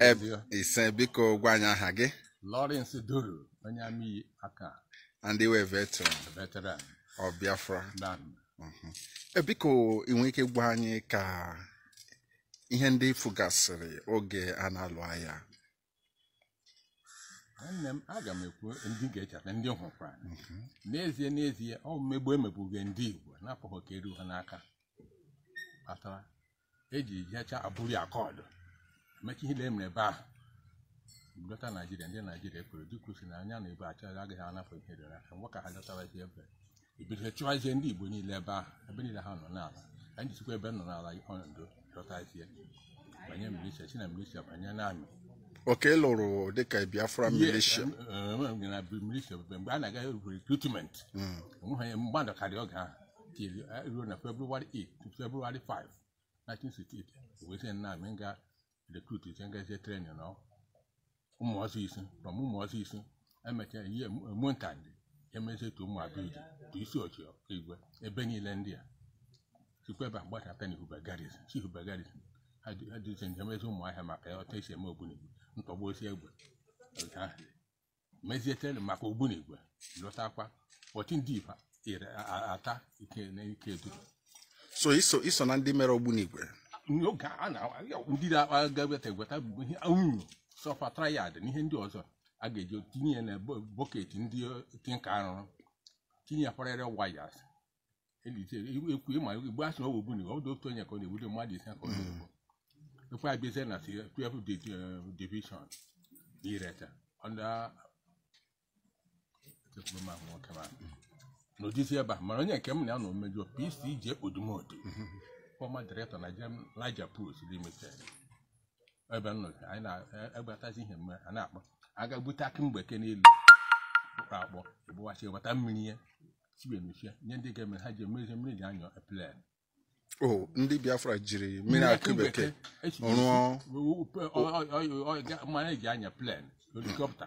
Eh, ise biko gwa anyị aha gị Lawrence Duru onye amị aka ndị wee veteran mhm. eh, biko inwe ike gwa anyị ka ihe ndị gasịrị oge a na-alụ agha nne m aga ekwu ndị ga-echeta ndị hụkwa mhm. n'ezie n'ezie ọ mmegbu ndị Igbo n'afọ ka eru ha n'aka kpatara eji jecha abụrụ akọọdụ emeka ihe emere ebe a dọta naijiria ndị naijiria kwuru dịkwusi na anya na ebe achọghị agaghị anapụ ihe dịrị aka mgbe ka ha dọtarazie ebe ibido chụwazie ndị igbo niile ebe ahụ ebe niile ha nọ n'ala anyị jisikwa ebe nọ n'ala ihe ọnọdụ dọtazie banye milisha si na milisha banye n'amị oke lụrụ dịka biafra milisha na milisha mgbe a na-aga erubere recruitment hmm. onweghị mmadụ karịa oge ahụ ruo na february 8 february 5 1968 wee sị na amị recruit cengezie trenin na ụmụọzọ isi from ụmụọzọ isi emechaa ihe emuntandị emezie tu ụmụ abụidi tu isi ochi igwe ebe niile ndị a sikweba gbachata na ihubegaris si ihubegaris ha dịzi njem ezi ụmụ ahịa maka ya ọta isi eme ogbunigwe ntọgbu osi egbe mezie trenin maka ogbunigwe lụtakwa ọchị ndị ifa ata ike na ike duru so iso na ndị mere ogbunigwe n'oge a na-ndị ndịda agaete um, sọfa trayad na ihe ndị ọzọ a ga-eji tinye ya na bọket ndị uh, tinka arụrụ tinyekwarịrị wayas e, e, ekwu ma asi asị na ogbugbu na ọdụ otu onye ka ọ na mmadụ ise ka ọ na-egbu mm. ekwe abizie na uh, ireta ebe a mana onye nke m na ya na pc ji ekpodumodu mm-hmm. former director na jem laija post n'ime ebe m anyị na-egbatazi ihe mme a na-akpọ aga bute akị mgbeke n'elu kpụkpọ akpọ ebụwachi eweta mmiri ya chibemechi nye ndị ga-eme ha ji emezi mmiri ji anyọ plen o ndị biafra jiri mmiri aka bekee rụọ mmanya ji anya plen helikọpta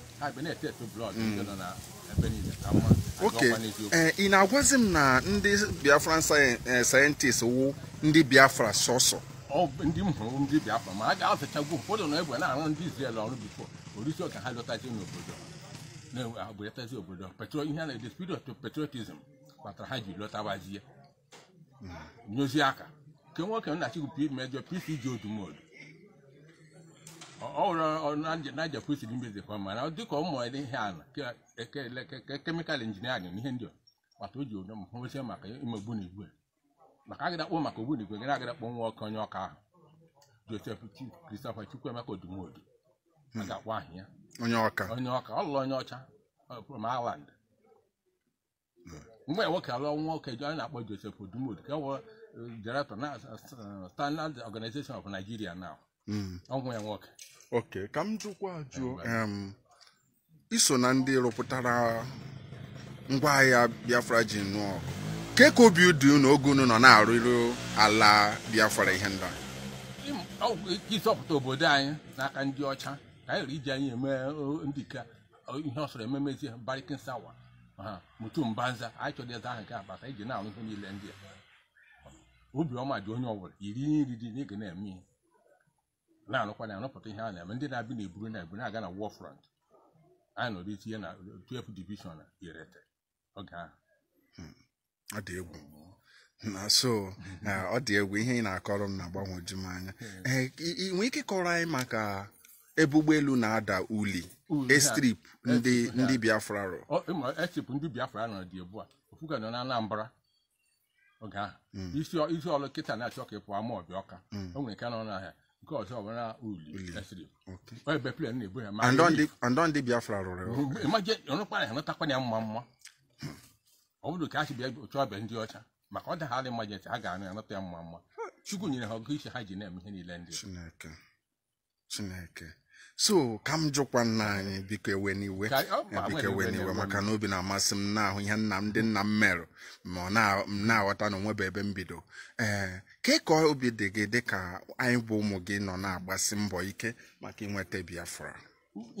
oke ị na-agwazi m na ndị biafra sayentist eh, wụ ndị biafra sọsọ ndị m hụrụ ndị biafra ma a ga-azachagwu ụfọdụ na na-arụ ndị Izrel ọrụ bifo orisi ha lọtazi n'obodo na ihe na spirit kpatara ha ji lọtawazie hmm. nyozi aka nke nwoke nna chigwu mejọ pc ji odumodu ọrụnaja pusi dị mbezikwa mana dịka ụmụ mụrụ ihe ala kemịkal injinia na ihe ndị mata o ji onye m hụsie maka ime ogbunigwe maka agịdakpọ maka ogbunigwe gara agịdakpọ nwa ọkụ onye ọka ahụ josef christopher emeka odumodu a onye ọka ọ onye ọcha from Ireland mgbe nwoke alụọ nwa na-akpọ josef odumodu ka ọ wụ uh, director na uh, standard organization of nigeria now ọgwụ ya nwoke ka m jụkwa jụọ iso na ndị rụpụtara ngwa agha biafra ji nụọ ọgụ ka obi dị na oge unu nọ na-arụrụ ala biafra ihe ndị ịzọpụta obodo anyị n'aka ndị ọcha ka anyị iji anyị eme ndịka ihe ọsọrọ ememezi barikin sawa ha mutu mbanza anyị chọrọ eze ahụ nke abata iji na-arụ ihe niile ndị a obiọma dị onye ọbụla iri nri dị na ga na-eme ihe na-anụkwa na anọpụta ihe a eme ndị na-abịa na eburu na ebu na-aga na war front anyị nọrọ itinye na 12 division irete oge ahụ ọ dị egwu na so ọ dị egwu ihe ị na-akọrọ m na-agbanwoju m anya hmm. eh, nwee ike kọrọ anyị maka ebe ụgbọelu na-ada uli estrip ndị ndị biafra rụ estrip ndị biafra nọ dị ugbu a ofuga nọ na anambra oge ahụ hmm. isi ọlụ kịta na-achọ ka ị pụọ ama ọbịa ọka hmm. o nwere nke nọ n'ahịa nke ọzọ ọbara uli ebeplen na-ebu ya andọ ndị biafra rụrụ ọnụkpara ha ya mma mma ọ bụrụ ka a si bịa chọọ ọbịa ndị ọcha maka ọ dagharị mmaji ha ga-anụ ya nụta ya mma mma chukwu nyere ha ọgụ isi ha ji na-eme ihe niile ndị chineke chineke so ka m jụkwa nna anyị biko ewen iwe biko ewen iwe maka na obi na-amasị m na-ahụ ihe nna m ndị nna m merụ ma m na-aghọta na onwebe ebe m bido ee eh, ka ka obi dị gị dị ka anyị bụ ụmụ gị nọ na-agbasi mbọ ike maka inweta biafra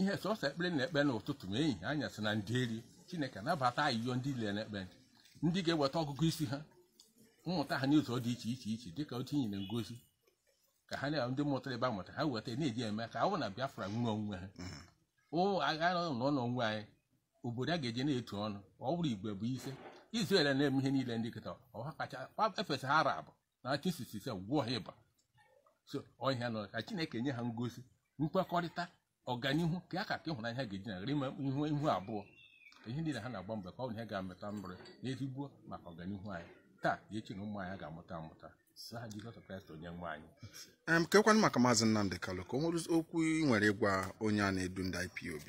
ihe sọsọ ekpere na-ekpe n'ụtụtụ ma ehihie anyasị na ndị eri chineke nabata ayịyọ ndị ile na-ekpe ndị ga-eweta ọgụgụ isi ha mmụta ha n'ụzọ dị iche iche iche dịka otu inyi ngozi ka ha na ndị mụtara ebe a mụtara ha weta na-eji eme ka awụ na biafra nwa onwe ha agha mm-hmm. nọ n'ọnụ anyị obodo a ga-eje na-etu ọnụ ọ bụrụ igwe bụ ise izrel na-eme ihe niile ndị kịta ọha kacha efesa ha arab na chisise gwụọ ha ịba so ọhịa nọ ka chineke nye ha ngosi nkwekọrịta ọganihu ka a ka ka ịhụnanya ha ga-eji nagara ime ihu ihu abụọ ihe niile ha na-agba mgbe ka ọ bụ ihe ga-amụta mbere n'ezigbo maka ọganihu anyị taa echi eche na ụmụ anyị ga-amụta amụta kekwanụ maka maazị Nnamdi Kalụ ka o nwere okwu ị nwere ịgwa onye a na-edu ndị IPOB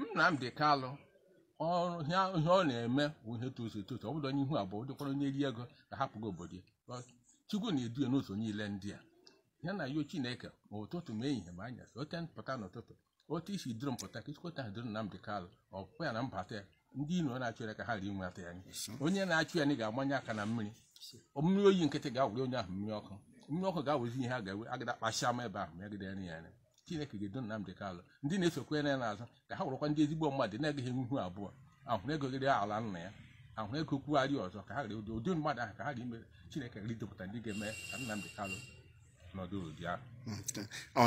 Nnamdi Kalụ ihe ọ na-eme bụ ihe tozu etozu ọ bụrụ onye ihu abụọ dịkwara onye eri ego ka hapụgo obodo ya Chukwu na-edu ya n'ụzọ niile ndị a ya na yo Chineke ma ụtụtụ ma ehihie ma anya ote pụta n'ụtụtụ otu isi duru mpụta ka ichikọta ha duru Nnamdi Kalụ ọ ya na mbata ndị iro na-achụ ya ka ha rie inwe afọ ya onye na-achụ ya anyị ga-agbanye aka na mmiri mmiri oyi nkịtị ga-awụrụ onye ahụ mmiri ọkụ mmiri ọkụ ga-awụzi ihe a ga-ewe agada kpasịa m ebe ahụ megide ya anya chineke ga-edo Nnamdi Kanu ndị na na ya na-azụ ka ha wụrụkwa ndị ezigbo mmadụ na-agaghị ihu abụọ ahụ ego egogide ala nna ya ahụrụ ego kwugharị ọzọ ka ha gere ụdị ụdị mmadụ ahụ ka ha ga-eme chineke ridepụta ndị ga-eme ka Nnamdi Kanu nọdụ ụdị ahụ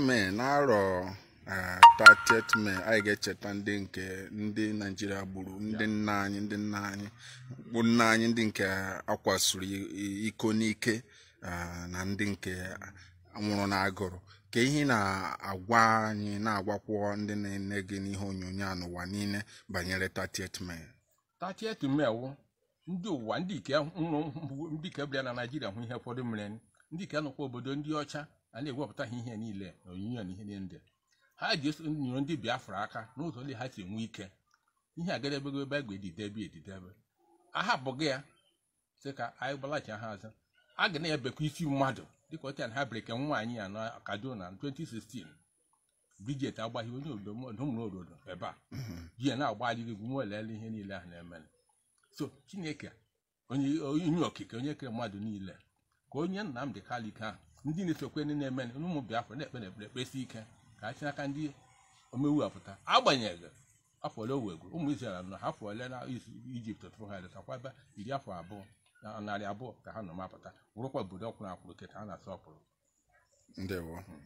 hmm, na 30 anyị ga-echeta ndị nke ndị Naijiria gburu ndị nna anyị ndị nna anyị bụ nna anyị ndị nke akwasuru iko n'ike na ndị nke nwụrụ na-agụrụ ka ihe na-agwa anyị na-agwakwụ ndị na-ene gị n'ihe onyonyo n'ụwa niile banyere 30th 30 wụ ndị ụwa ndị ike nwụrụ ndị ike bịara na Naijiria hụ ihe ụfọdụ mere ndị ike nọkwa obodo ndị ọcha a na-ewepụta ha ihe niile na na ihe niile ha ji nyoro ndị biafra aka n'ụzọ ndị ha si enwe ike ihe agadebego ebe egbe edidebe edidebe ahapụghị ya sị ka anyị gbalachi ha azụ a ga na-ebekwa isi mmadụ dịka ọcha ha bereke nwaanyị ya na kaduna na 2016 Bridget agbaghị onye obodo ebe a ji ya na-agbalịrị igwu nwelele ihe niile ahụ na-emere so chineke onye okike onye kere mmadụ niile ka onye Nnamdi Kanu ike ahụ ndị na-esokwe ndị na-eme ụmụ Biafra na-ekpe na ekpere ekpesi ike ka ha si n'aka ndị omewu apụta agbanyeghị afọ ole owego ụmụ Izrel nọ afọ ole na Ijipt tụrụ ha eletakwa ebe iri afọ abụọ na narị abụọ ka ha nọ mapụta wụrụkwa obodo ọkwụrụ akwụrụ nke ka ha na-asọpụrụ ndewo hmm.